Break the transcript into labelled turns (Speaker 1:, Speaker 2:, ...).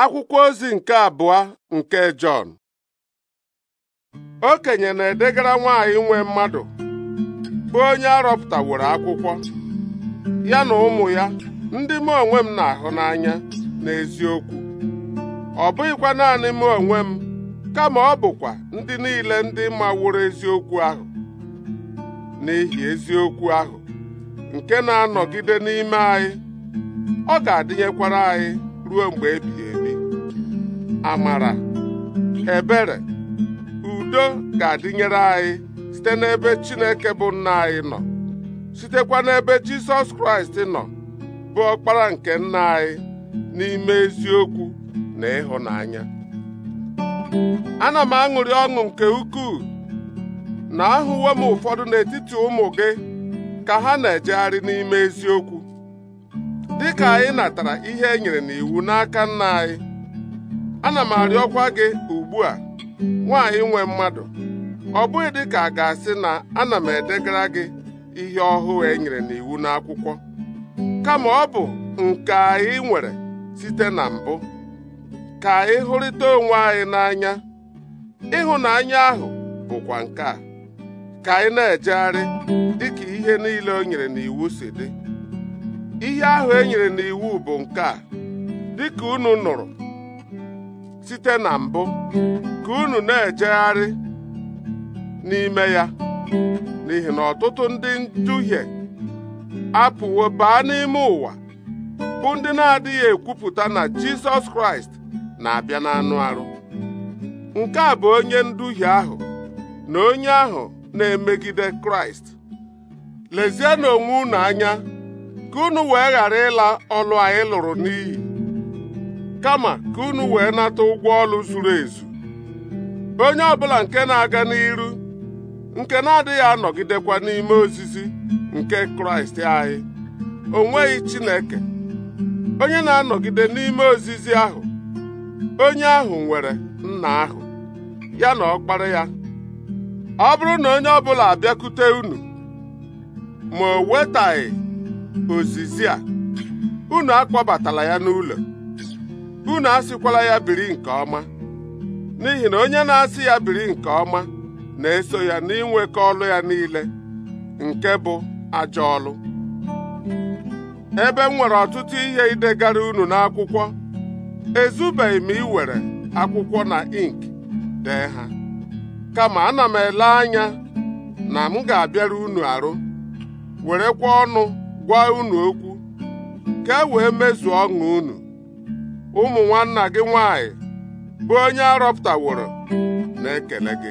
Speaker 1: akwụkwọ ozi nke abụọ nke Jọn okenye na-edegara nwaanyị nwe mmadụ bụ onye arọpụtaworo akwụkwọ ya na ụmụ ya ndị m onwe m na-ahụ n'anya n'eziokwu ọ bụghịkwa naanị m onwe m kama ọ bụkwa ndị niile ndị maworo eziokwu ahụ n'ihi eziokwu ahụ nke na-anọgide n'ime anyị ọ ga-adịnyekwara anyị ruo mgbe ebighị ebi amara ebere udo ga-adịnyere anyị site n'ebe Chineke bụ nna anyị nọ sitekwa n'ebe Jizọs Kraịst nọ bụ ọkpara nke nna anyị n'ime eziokwu na ịhụnanya ana m aṅụrị ọṅụ nke ukwuu na ahụwo m ụfọdụ n'etiti ụmụ gị ka ha na-ejegharị n'ime eziokwu dịka anyị natara ihe e nyere n'iwu n'aka nna anyị ana m arịọkwa gị ugbu a nwaanyị nwe mmadụ ọ bụghị dị ka a ga-asị na ana m edegara gị ihe ọhụụ e nyere n'iwu n'akwụkwọ kama ọ bụ nke anyị nwere site na mbụ ka anyị hụrịta onwe anyị n'anya ịhụnanya ahụ bụkwa nke a ka anyị na-ejegharị dịka ihe niile o nyere n'iwu si dị ihe ahụ e nyere n'iwu bụ nke a dịka unu nụrụ site na mbụ ka unu na-ejegharị n'ime ya n'ihi na ọtụtụ ndị nduhie apụwo baa n'ime ụwa bụ ndị na-adịghị ekwupụta na Jizọs Kraịst na-abịa anụ arụ nke a bụ onye nduhie ahụ na onye ahụ na-emegide Kraịst na onwe unu anya ka unu wee ghara ịla ọlụ anyị lụrụ n'iyi kama ka unu wee nata ụgwọ ọrụ zuru ezu onye ọbụla nke na-aga n'iru nke na-adịghị anọgidekwa n'ime ozizi nke kraịst anyị o nweghị chineke onye na-anọgide n'ime ozizi ahụ onye ahụ nwere nna ahụ ya na ọkpara ya ọ bụrụ na onye ọbụla abịakwute unu ma o wetaghị ozizi a unu akpọbatala ya n'ụlọ unu asịkwala ya biri nke ọma n'ihi na onye na-asị ya biri nke ọma na-eso ya n'inwekọ ọlụ ya niile nke bụ ajọ ọlụ ebe m nwere ọtụtụ ihe idegara unu n'akwụkwọ ezubeghị m iwere akwụkwọ na ink dee ha kama ana m ele anya na m ga-abịara unu arụ werekwa ọnụ gwa unu okwu ka e wee mezuo ọṅụ unu ụmụ nwanna gị nwanyị bụ onye arọpụtaworo na-ekele gị